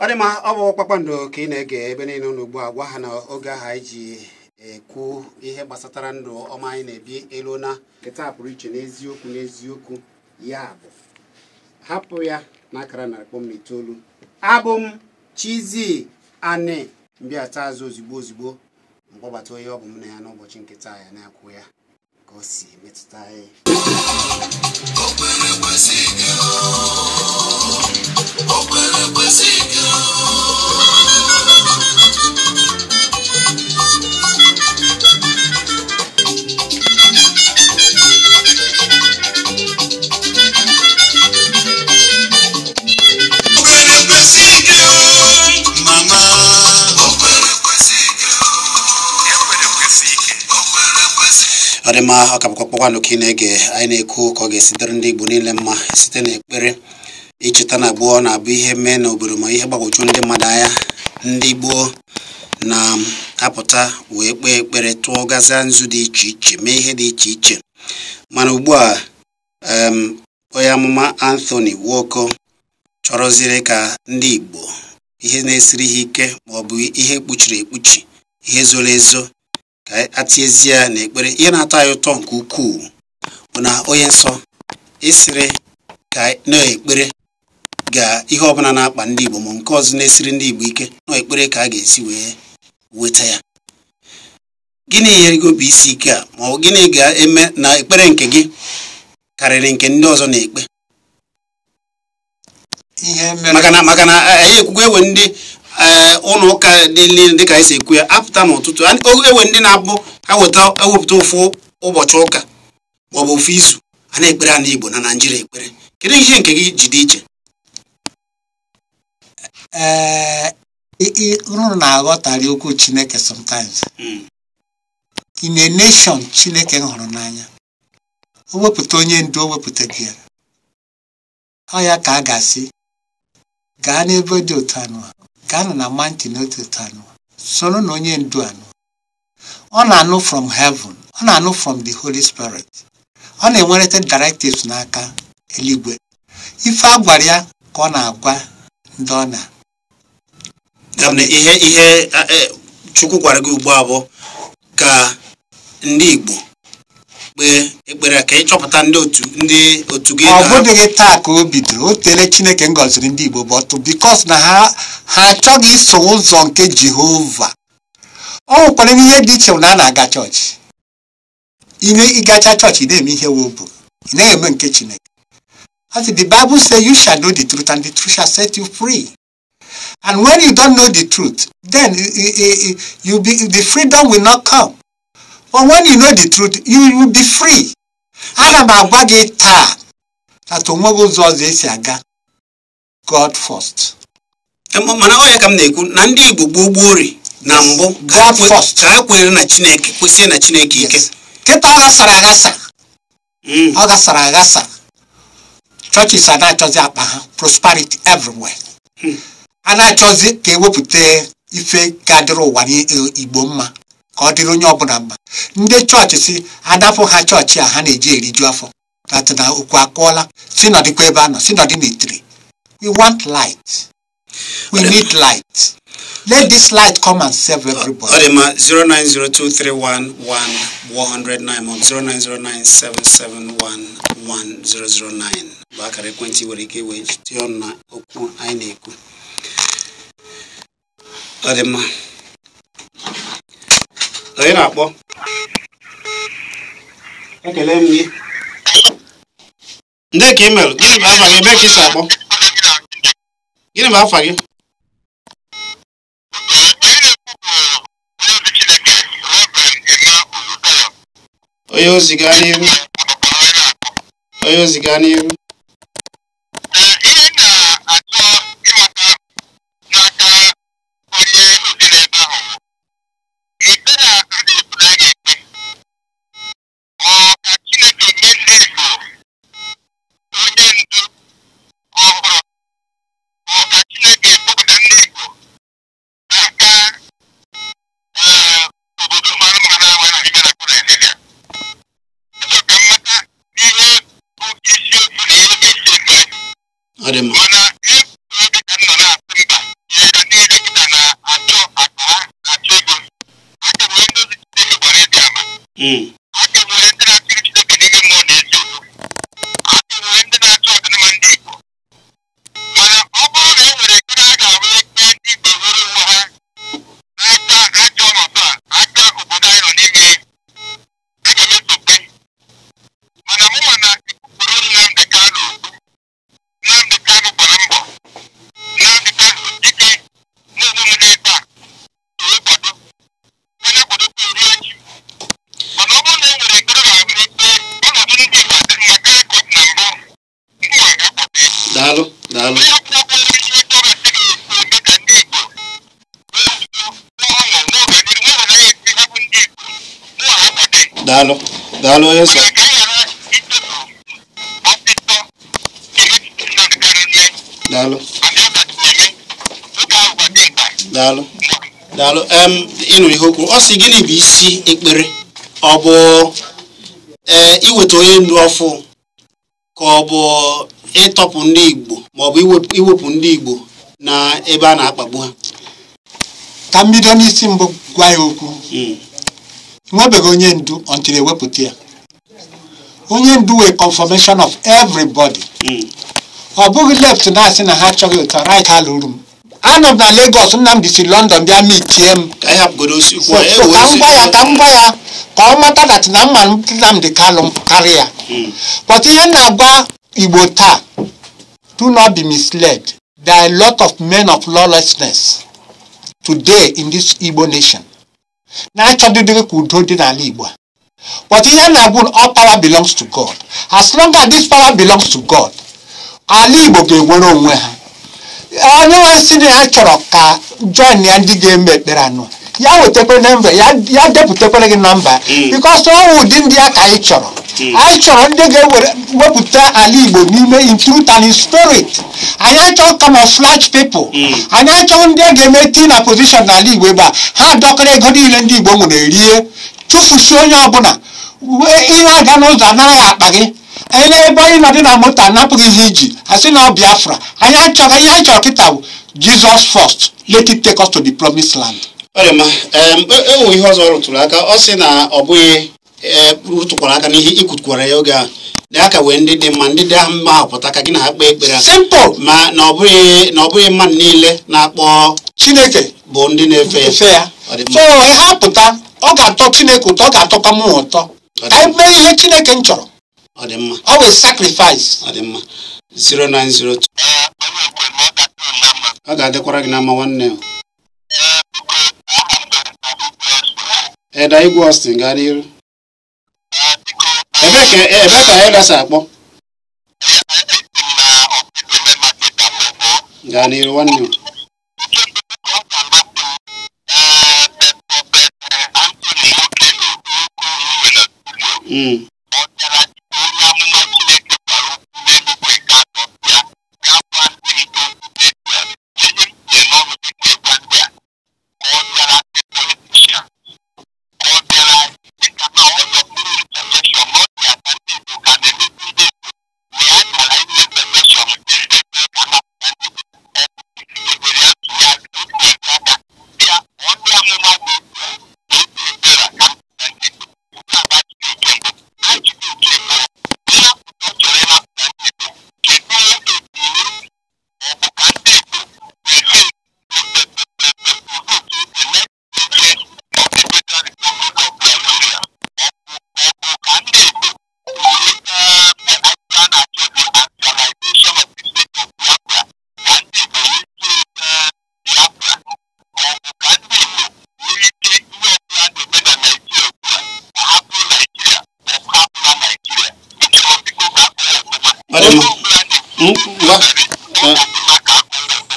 ọ dị mma ọ bụ kpakpando ka ị na-ege ebe niile ụlọ ugbu a gwa ha na oge ahụ anyị ji ekwu ihe gbasatara ndụ ọma anyị na-ebi elona na nketa pụrụ iche n'eziokwu n'eziokwu ya bụ hapụ ya na narị kpọm na itoolu abụ m Chizzy Ani taa azụ ozigbo ozigbo mkpọbata onye ọ bụ m na ya n'ụbọchị nketa ya na-akwụ ya ka si metụta anyị ọdịmma ọ ka ị na-ege anyị na-ekwu ka ọ ga-esitere ndị Igbo niile mma site na-ekpere icheta na gboo na-abụ ihe mee n'obodo ma ihe gbagwoju ndị mmadụ anya ndị gboo na-apụta wee kpee ekpere tụọ gazia nzu dị iche iche mee ihe dị iche iche mana ugbu a onye amụma Anthony Nwoko chọrọziri ka ndị Igbo ihe na-esiri ha ike ma ọ bụ ihe kpuchiri ekpuchi ihe zoro ezo ka atiezie ya na ekpere ihe na-atọ anyị ụtọ nke ukwuu bụ na onye nsọ esiri ka na ga ihe ọbụla na-akpa ndị Igbo ma nke ọzọ na-esiri ndị Igbo ike na ka a ga-esi wee weta ya gịnị nyerego bụ isi ike a ma ọ bụ gịnị ga-eme na ekpere nke gị karịrị nke ndị ọzọ na-ekpe maka na anyị ekwukwe ewe ndị Eh, ụlọ ụka dị niile dịka anyị si ekwu ya apụta n'ụtụtụ ewe ndị na-abụ weta ewepụta ụfụ ụbọchị ụka maọbụ ofu izu a na-ekpere ana Igbo na Naịjirịa ekpere kedu ihe nke gị ji dị iche eh, unu na-aghọtara okwu Chineke sọmtaims hmm. in a nation Chineke hụrụ n'anya o wepụta onye ndu o wepụta gị ya ọ ya ka a ga-asị gaa n'ebe dị otu anụ Ghana na manti n'otito anụ soro na onye ndu anụ ọ na-anụ from heaven ọ na-anụ from the Holy Spirit ọ na-enwerịta directives n'aka eluigwe ife a gwara ya ka ọ na-agwa ndị ọ na ihe ihe e, Chukwu gwara gị ugbu a ka ndị Igbo ekpe ekpere ka ị chọpụta ndị otu ndị otu gị ọ bụdịghị taa ka o bidoro o tere chineke ngọziri ndị igbo bọtụ bikos na ha ha achọghị iso ụzọ nke jehova ọ nwekwara ihe dị iche na a na-aga chọọchị ime ịgacha chọọchị ị na-eme ihe wobu ị naghị eme nke chineke as the bible say you shall know the truth and the truth shall set you free and when you don't know the truth then you be, the freedom will not come But when you know the truth, you will be free. ana m agwa gị taa ata onweghị ụzọ ọzọ esi aga God first. E, mana ọ ya ka m na-ekwu na ndị Igbo gboo gboo ori na mbụ ka ha kwere na Chineke kwesịrị na Chineke ike kịta ọ ghasara aghasa mm. ọ ghasara aghasa churches ana-achọzi akpa ha prosperity everywhere mm. a na-achọzi ka ewepụta ife ga-adịrị ụwa n'Igbo e, mma ka ọ dịrị onye ọbụla mma ndị chọọchị si adapụ ha chọọchị a ha na-eji eriju afọ dat na okwu akụọla si nọdịkwa ebe a nọ si nọdị n'itiri we want light we need light let this light come and save everybody. ọ dị ma 09023111009 ma 09097711009 bụ akara ekwentị nwere ike wee na okwu anyị na-ekwu ọ dị mma onye na-akpọ ekele m gị ndị ka ị imelụ gịnị bụ afa gị ebe ka ị si akpọ gịnị bụ afa gị onye ozi gaa n'ihu onye ozi gaa n'ihu daalụ daalụ onye nsọ daalụ daalụ daalụ ịnụ ihe okwu ọ sị gịnị bụ isi ekpere ọ bụ ee iweta onye ndu ọfụ ka ọ bụ ịtọpụ ndị igbo maọbụ iwepụ ndị igbo na ebe a na-akpagbu ha ka mbido bido n'isi mbụ gwa ya okwu hmm. enwebeghị onye ndu until ewepụta ya onye ndu wee confirmation of everybody hmm. ọ bụghị left na-asị na ha achọghị ụtọ right ha lụrụ m anọ m na Lagos Nnamdi si London bịa mitie m ka e m gwa ya ka m gwa ya ka ọ mata dat na mma Nnamdi Kanu karịa hmm. but ihe na-agwa Igbo taa do not be misled there are a lot of men of lawlessness today in this Igbo nation na-achọdịdịrị ka udo dị n'ala Igbo a but ihe na na all power belongs to God as long as this power belongs to God ala Igbo ga-enwere onwe ha onye nwe si na ha chọrọ ka join ya ndị ga-eme ekpere anụ ya wetakwa nemba ya ya depụtakwara gị na mba ọ ọnwụ ụdị ndị a ka anyị chọrọ anyị chọrọ ndị ga ewere wepụta ala igbo n'ime in truth and in spirit anyị achọghị camouflage people eh. anyị achọghị ndị a ga-eme tii na position n'ala igbo ebe a ha dọkara ego niile ndị igbo nwere rie tụfusie onye ọbụla ihe aga n'ụzọ anaghị akpa gị ele na-ebe anyị nọdị na moto anapụghịzi iji asị na ọ biafra anyị achọghị ihe anyị chọrọ kịta bụ jizọs fọst let it take us to the promised land ewo e, e ihe ọzọ rụtụrụ aka ọ sị na ọ bụghị e, rụtụkwara aka n'ihe ikutukwara ya oge a na aka wee ndị dị mma ndị dị ahụ mma apụta ka gị na ha kpee ekpere ma na ọ bụghị mmadụ niile na-akpọ Chineke bụ ndị na-efe ya so ha pụta ọ ga-atọ Chineke ụtọ ọ ga-atọkwa m ụtọ ka anyị mee ihe Chineke m chọrọ ọ dị mma ọ bụ sacrifice ọ dị mma 0902 ọ ga-adịkwara gị na mma nwanne Eda Igwe Austin gaa n'ihu ebe ka eh, ebee ka akpọ gaa n'ihu nwanne m Mm.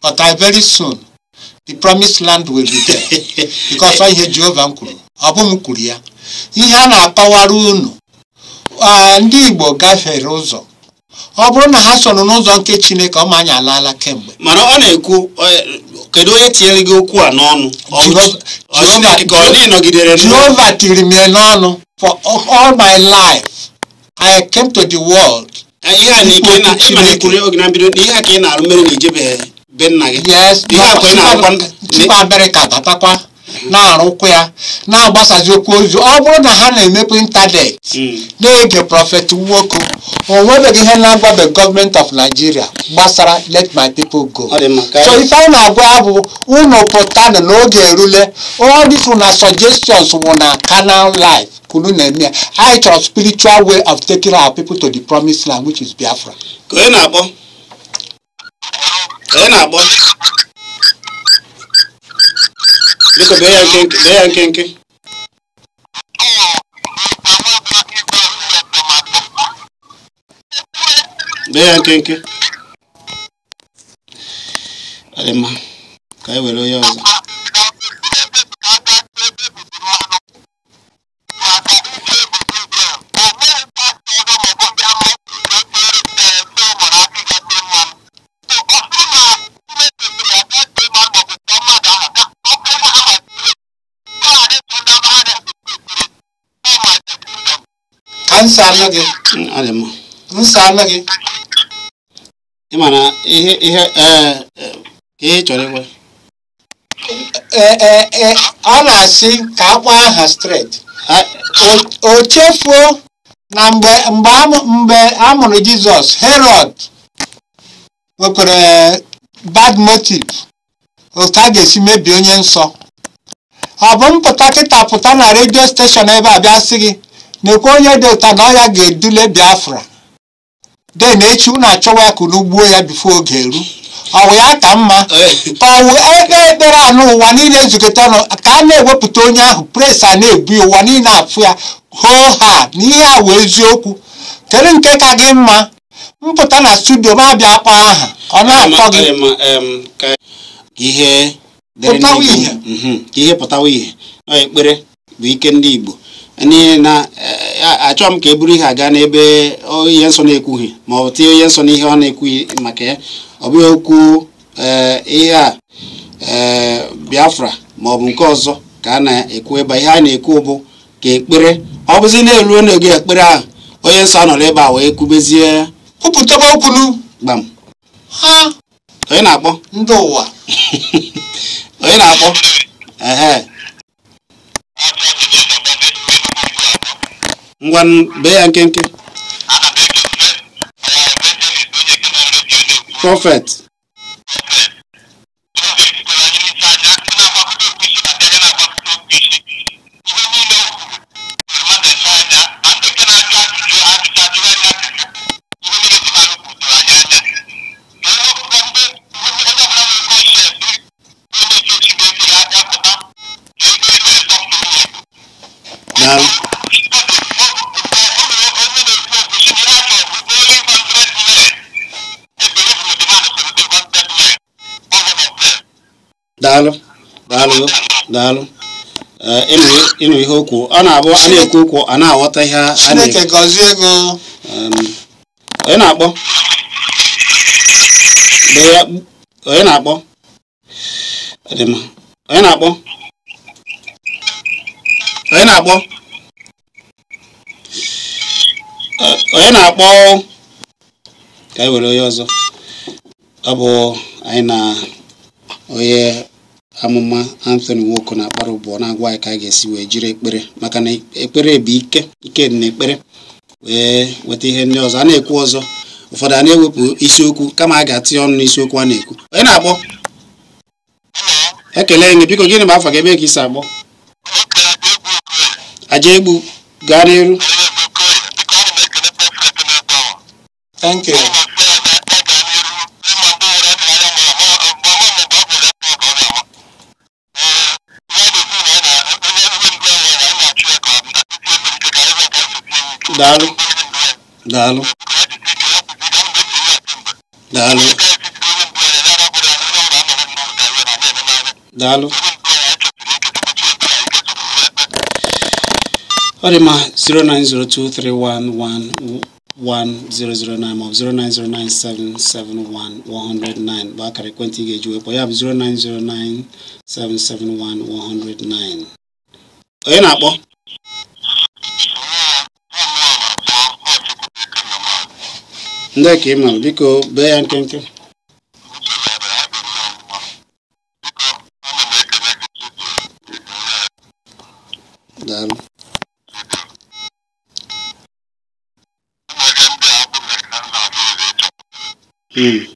but I very soon the promised land will be there because i hear jehovah kwuru ọ m kwuru ya ihe a na-akọwara unu ndị Igbo gafere ụzọ ọ bụrụ na ha soro n'ụzọ nke Chineke ọ ma anyị alaala kemgbe mana ọ na-ekwu e, kedu onye tinyere gị okwu a n'ọnụ jeova tiri m n'ọnụ for all my life I came to the world ihe a ka ị na-alụ mere na ijebeghị be nna gị tupu abịrị ka tatakwa na-arụkwa ya na-agbasazi okwu ozi ọ bụrụ na ha na-emepe ịntanetị na-ege prọfet nwoke o nwebeghị ihe na-agwabe gọọmenti of Nigeria gbasara let my people go so ife anyị na-agwa ya bụ unu pụtanụ n'oge erule all na suggestions wụ na canal life kunu na-eme ya anyị chọrọ spiritual way of taking our people to the promised land which is Biafra ka ị na-akpọ Onye na-agbọ? Biko bee ya nkenke, bee ya nkenke. Bee ya nkenke. ka anyị were onye ọzọ. nsala gị nsala gị ị ma na ihe ihe ee e, ka ị chọrọ ịgwa e, e, a na-asị ka akpọ aha straight o chefuo na mgbe mgbe a mụrụ Jizọs Herod nwekwara bad motive otu a ga-esi mebie onye nsọ ọ bụ mpụta kịta pụta na redio steshọn ebe a bịa sị gị nekwe onye dị ụta na ya ga-edule biafra den echi unu achọwa ya ka unu gbuo ya bifo oge eru ọwụ ya ka mma ka ebe ekpe ekpere anụ ụwa niile ezukọta ọnụ ka a na-ewepụta onye ahụ pres a na-ebu ya ụwa niile afụ ya hoo ha na ihe awụ eziokwu kedu nke ka gị mma mpụta na studio ma abịa akpa aha ọ na-atọ gị mhm, ihe pụtawa ihe ekpere bụ ike ndị Igbo n'ihi na eh, achọm m ka e buru ihe aga n'ebe ihe nsọ na-ekwughị ma ọ tinye ihe nsọ n'ihe ọ na-ekwughị maka ya ọ bụghị okwu eh, ihe a eh, Biafra ma ọ bụ nke ọzọ ka a na-ekwu ebe ihe a na-ekwu bụ ka ekpere ọ bụzi na-eruo n'oge ekpere ahụ onye nsọ anọrọ ebe a wee kwubezie kwupụtaba okwulu gbam onye na-akpọ ndị ụwa onye na-akpọ ehe ngwan be yankenke ah, eh, prophet Now, daalụ daalụ eh, ịnụ ihe okwu ọ na-abụ a na-ekwu okwu a na-aghọta ihe a na-akpọ onye na-akpọ onye na-akpọ onye eh, na-akpọ onye na-akpọ ka anyị e were onye ọzọ ọ bụ anyị na onye amụma Anthony Nwoko na-akpara ụbọ na-agwa anyị ka a ga-esi wee jiri ekpere maka na ekpere bụ ike ike na ekpere wee nweta ihe ndị ọzọ a na-ekwu ọzọ ụfọdụ a na-ewepụ isiokwu kama a ga atị ọnụ n'isiokwu a na-ekwu onye na-akpọ ekele biko gịnị afọ gị ebe ka isi akpọ aja egbu gaa n'iru daalụ daalụ daalụ daalụ ọ dị ma 09023111009 ma ọ bụ 09097711009 bụ akara ekwentị ị ga ejuwe wekpọ ya bụ 09097711009 onye na-akpọ ndị ka ị mara biko bee ya nkenke daalụ hmm.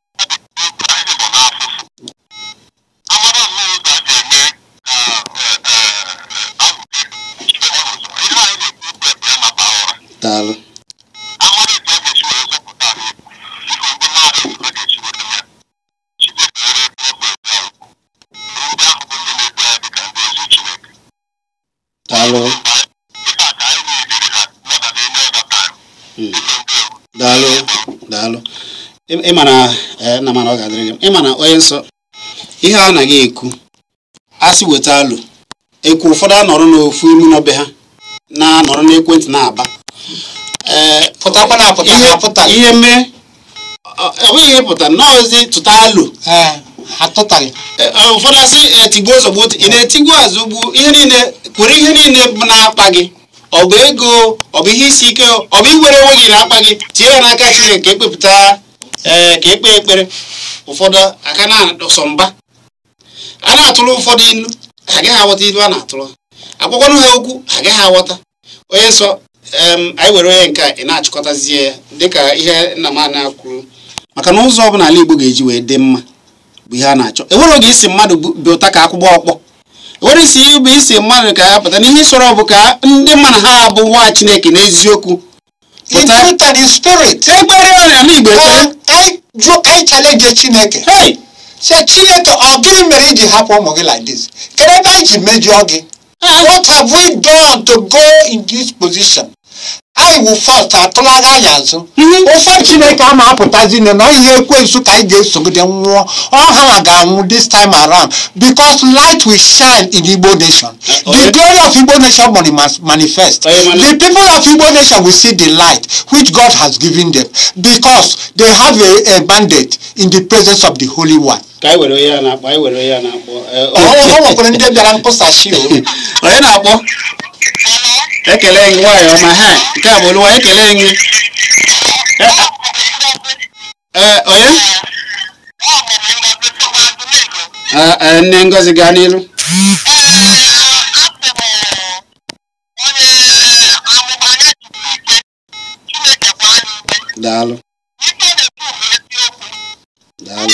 akwụkwọ nsọ ihe a anaghị ekwu asị weta alụ ekwu ụfọdụ anọrọ n'ofu imi n'obe ha na-anọrọ n'ekwentị na-aba ihe mee enweghị ihe pụta nọọzi tụta alụ ụfọdụ asị etigbuo zọgbuo ị na-etigbu azụgbu ihe niile kwere ihe niile bụ na-akpa gị ọ bụ ego ọ bụ ihe isi ike ọ bụ iwere onwe gị na-akpa gị tie ya n'aka Chineke ka e ekpepụta ee eh, ka ekpe ekpere ụfọdụ aka na-adọsọ mba a na-atụrụ ụfọdụ ilu ha agaghị aghọta ilu a na-atụrụ ha akwụkwọnụ ha okwu ha agaghị aghọta onye nsọ anyị were onye nke ị na-achịkọtazie ya dịka ihe nna m ana kwuru maka na ụzọ ọbụla ala Igbo ga-eji wee dị mma bụ ihe a na-achọ enwere oge isi mmadụ bụ ụta ka akwụgbọ ọkpọ enwere isi bụ isi mmadụ ka ya pụta na ihe bụ ka ndị mmadụ ha bụ nwa Chineke n'eziokwu pụta ịjụ anyị challenge chineke sị chineke ọ gịnị mere iji hapụ ụmụ gị like this kedu ebe anyị ji mejọọ gị what have we done to go in this position anyị wụ fast atụlaga ya azụ ụfọ chineke ama apụtazi na na ihe ekwensu ka anyị ga-esogide nwụọ ọha nwa ga-anwụ this time around because light will shine in igbo nation the glory of igbo nation must manifest the people of igbo nation will see the light which god has given them because they have a, a mandate in the presence of the holy one ka anyị were onye ya na-akpọ anyị were onye ya na-akpọ ọ nwekwara ndị bịara mkpụsashi onye na-akpọ ekele gị nwaanyị ọma ha nke a bụ olu nwaanyị ekele gị ee onye e, nne ngozi gaa n'ilu daalụ daalụ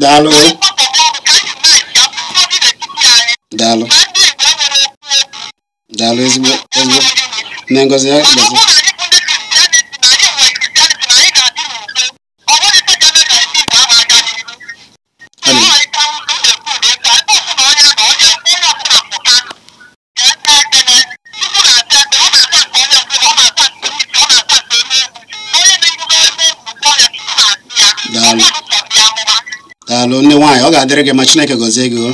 daalụ daalụ daalụ ezigbo ezigbo nne ngozi ya gbazi daalụ ndị nwaanyị ọ ga-adịrị gị ma Chineke gọzie gị ọ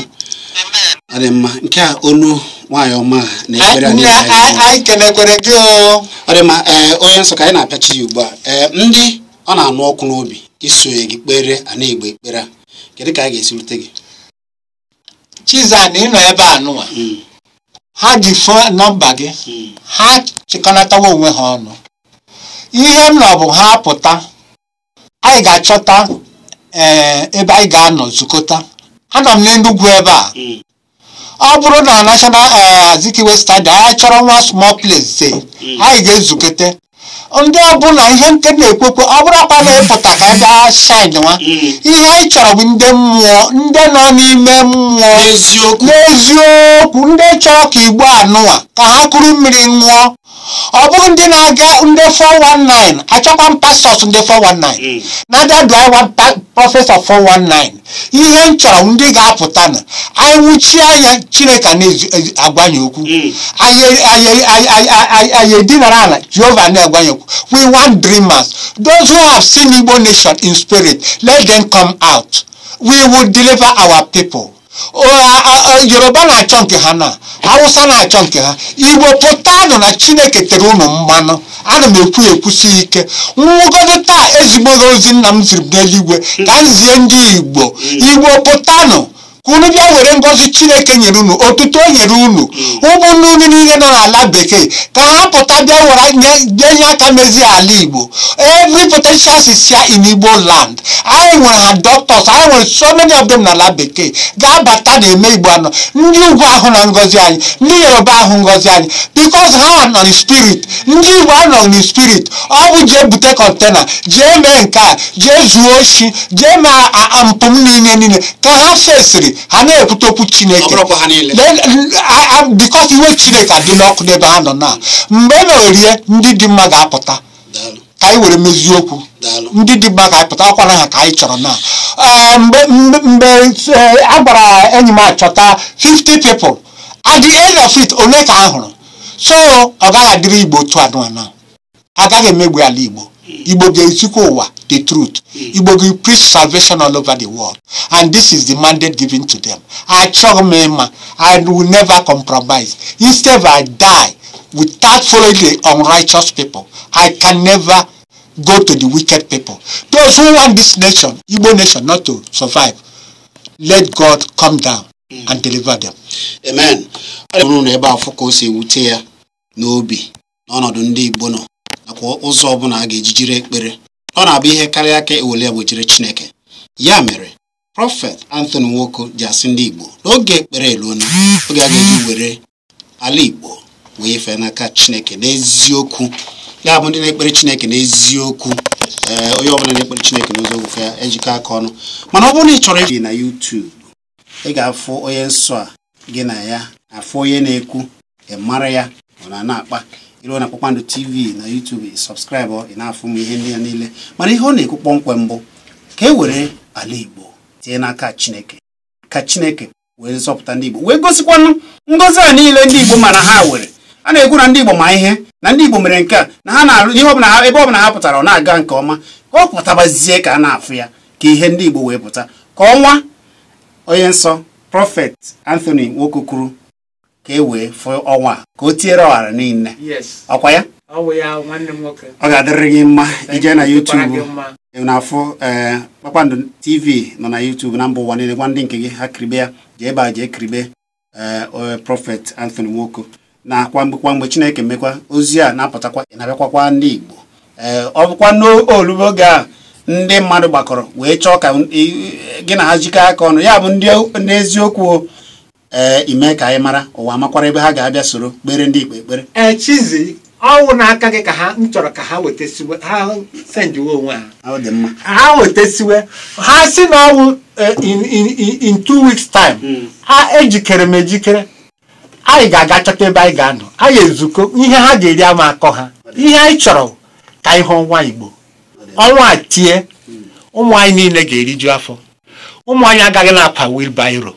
dị mma nke a olu nwaanyị ọma na ekpere ọ dị mma eh, onye nsọ ka anyị na-apịachi ya ugbu a ee eh, ndị ọ na-anụ ọkụ n'obi isonye gị kpere ana ekpere a kedu ka a ga-esi rute gị chiza Chizan nọ ebe a nụwa hmm. ha ji fon nọmba gị hmm. ha chịkọnatawa onwe ha ọnụ ihe m nọ bụ ha pụta anyị ga-achọta Eh, ebe anyị ga-anọ zukọta anọ m n'Enugu ebe a ọ bụrụ na national eh, Azikiwe stadium anyị chọrọ nwa small place eh, anyị ga-ezukọta ndị ọbụla ihe nke na-ekwekwe ọ bụrụ na ịpụta ka ebe a shine nwa ihe anyị chọrọ bụ ndị mmụọ ndị nọ n'ime mmụọ n'eziokwu ndị chọrọ ka igbo anụwa ka ha kụrụ mmiri ṅụọ ọ bụghị ndị na-aga ndị 419 achọkwa m pastọs ndị 419 na-abịa ịwa prọfesọ 419 ihe m chọrọ ndị ga-apụta na anyị nwụchie anya chineke na-agwanye okwu mm. anyị edinara ala jehova na-agwanye okwu we want dreamers those who have seen igbo nation in spirit let them come out we will deliver our people. yoruba na-achọ nke ha na hausa na-achọ nke ha igbo pụtanụ na chineke tere ụnụ mmanụ ana m ekwu ekwusi ike nwụgodo taa ezigbo ozi nna m ziri n'eluigwe ka m zie ndị igbo igbo pụtanụ unu bịa were ngọzi chineke nyere unu otuto o nyere unu hmm. ụmụnne unu niile nọ n'ala bekee ka ha pụta bịa were nye nye aka mezie ala igbo every potential sisia in igbo land anyị nwere ha doctors anyị nwere so many of them n'ala bekee ga-abata na-eme igbo anọ ndị ugwu ahụ na ngọzi anyị ndị yoruba ahụ ngọzi anyị because ha nọ spirit ndị igbo anọ na spirit ọ bụ jee bute kọntena jee mee nke a jee zuo oshi jee mee mpụ niile niile ka ha fesiri ha na-ekwute okwu chineke bikos iwe chineke adị n'ọkụ n'ebe ha nọ na mgbe e ndị dị mma ga-apụta ka anyị were mezie ndị dị mma ga-apụta akwara ha ka anyị chọrọ na ah, mgbe eh, a gwara enyi m achọta 50 people at the end of it ole ka a hụrụ so ọ gaghị adịrị igbo otu anụ anọ agaghị emegbu ala igbo Igbo Geisukowa, the truth. Hmm. Igbo Ge preach salvation all over the world. And this is the mandate given to them. I chogmema. I will never compromise. Instead, I die without following the unrighteous people. I can never go to the wicked people. Those who want this nation, Igbo nation, not to survive, let God come down hmm. and deliver them. Amen. nakwa ụzọ ọbụla a ga-eji jiri ekpere ọ na-abụ ihe karịa aka ewele ya gbochiri Chineke ya mere prọfet Anthony Nwoko ji asị ndị Igbo n'oge ekpere eluona oge a ga-eji were ala Igbo wee fee n'aka Chineke n'eziokwu ya bụ ndị na-ekpere Chineke n'eziokwu ee onye ọbụla na-ekpere Chineke n'ụzọ ogofe ya ejikọ aka ọnụ mana ọ bụrụ na ị chọrọ ibi na yutubu ị ga-afụ onye nsọ a gị na ya afụ onye na-ekwu ị mara ya ọ na na-akpa ịrụọ na kpakpando tv na youtube sọbskraịbụ ị na-afụ m ihe ndị ya niile mana ihe ọ na-ekwu kpọmkwem mbụ ka e were ala igbo tie n'aka chineke ka chineke wee zọpụta ndị igbo wee gosikwanụ ngọzi a niile ndị igbo mana ha were a na-ekwu na ndị igbo ma ihe na ndị igbo mere nke a na ha na-arụ ihe ọbụla ha ebe ọbụla ha pụtara ọ na-aga nke ọma ka ọ pụtabazie ka a na-afụ ya ka ihe ndị igbo wee pụta ka ọnwa onye nsọ prọfet anthony nwoke kwuru ka e wee fụ ọnwa ka o tiere ọghara niile ọkwa ya ọ ga-adịrị gị mma ije na YouTube na-afụ ee kpakpando tv nọ na YouTube na mba ụwa niile gwa ndị nke gị ha kiribe ya jee ebe a jee kiribe ee prọfet Anthony Nwoko na kwa mgbe kwa mgbe Chineke mekwa ozi a na-apụtakwa na-abịakwakwa ndị Igbo ee ọ bụkwa n'olubo oge a ndị mmadụ gbakọrọ wee chọọ ka e, gị na ha jikọ aka ọnụ ya bụ ndị n'eziokwu Eh, ime ka anyị mara ụwa amakwara ebe ha ga-abịa soro kpere ndị ikpe ekpere ee eh, chizi ọnwụ n'aka gị ka ha m chọrọ ka ha wetesiwe ha senjiwe onwe ha ha wetesiwe ha si na ọnwụ eh, in two weeks time hmm. ha ejikere m ejikere anyị ga-aga chọta ebe anyị ga-anọ anyị ezukọ ihe ha ga-eri ama akọ ha ihe anyị chọrọ ka ihe ọnwa igbo ọnwa a tie hmm. ụmụ anyị niile ga-eriju afọ ụmụ anyị agaghị na-akwa wilbairo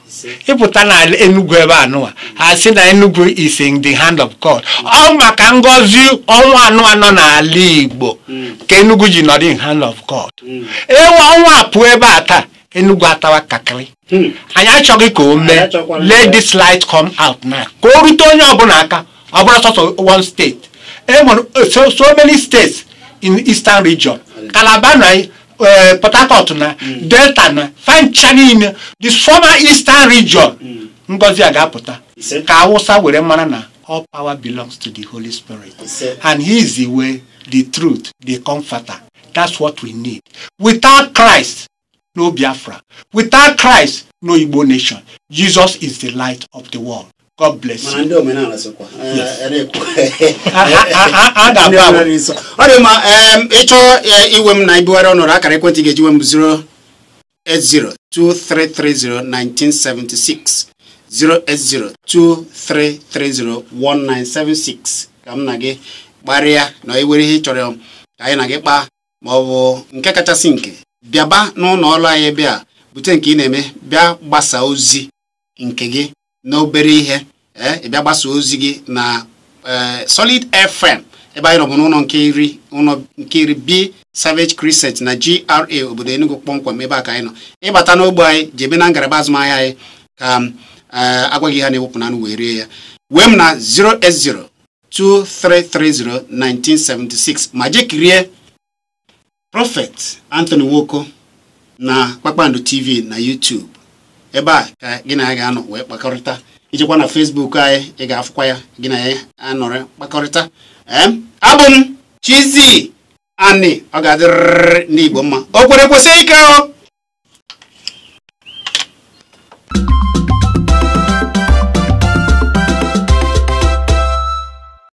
ịpụta n'ala Enugu ebe anụwa ha si na Enugu is in the hand of God ọ maka ngọzi ọnwa anụwa nọ n'ala Igbo ka Enugu ji nọrọ in hand of God ewe ọnwa pụọ ebe a taa Enugu atawa kakịrị anyị achọghị ka o mee let this light come out now ka o rute onye ọbụla aka ọ bụrụ sọsọ one state enwere so many states in eastern region Calabar na port harcourt na delta na fancha niile the former eastern region mm. ngozi a ga-apụta ka awụsa were mara na all power belongs to the holy spirit and he is the way the truth the comforter that's what we need without christ no biafra without christ no igbo nation jesus is the light of the world God bless you. na eh, ọ dị mma ịchọ eh, iwe m na ibugharị ọnọdụ akara ekwentị ga-eji nwe m 08023301976 08023301976 ka m na gị kparịa na iwere ihe ị chọrọ ka anyị na gị kpaa ma ọ bụ nke kachasị nke bịaba n'ụlọ ọrụ anyị bịa bute nke ị na-eme bịa gbasaa ozi nke gị n'obere ihe eh, ịbịa gbasa ozi gị na eh, Solid FM ebe anyị nọbụ n'ụlọ nke iri ụlọ nke iri B Savage Crescent na GRA obodo Enugu kpọmkwem ebe a ka anyị nọ ịbata n'ogbe anyị ji ebe na ngalaba azụmahịa anyị ka eh, agwa gị ha na-ewepụ nanụ wee rie ya wee m na 0s0 2330 1976 ma jekirie prọfet Anthony Nwoko na Kpakpando TV na YouTube ebe a ka gị na ya ga-anọ wee kpakọrịta ijekwa na Facebook anyị ị ga-afụkwa ya gị na ya anọrị kpakọrịta abụ m chizi Ani ọ ga-adịrịrị n'Igbo mma o kwere kwesị ike o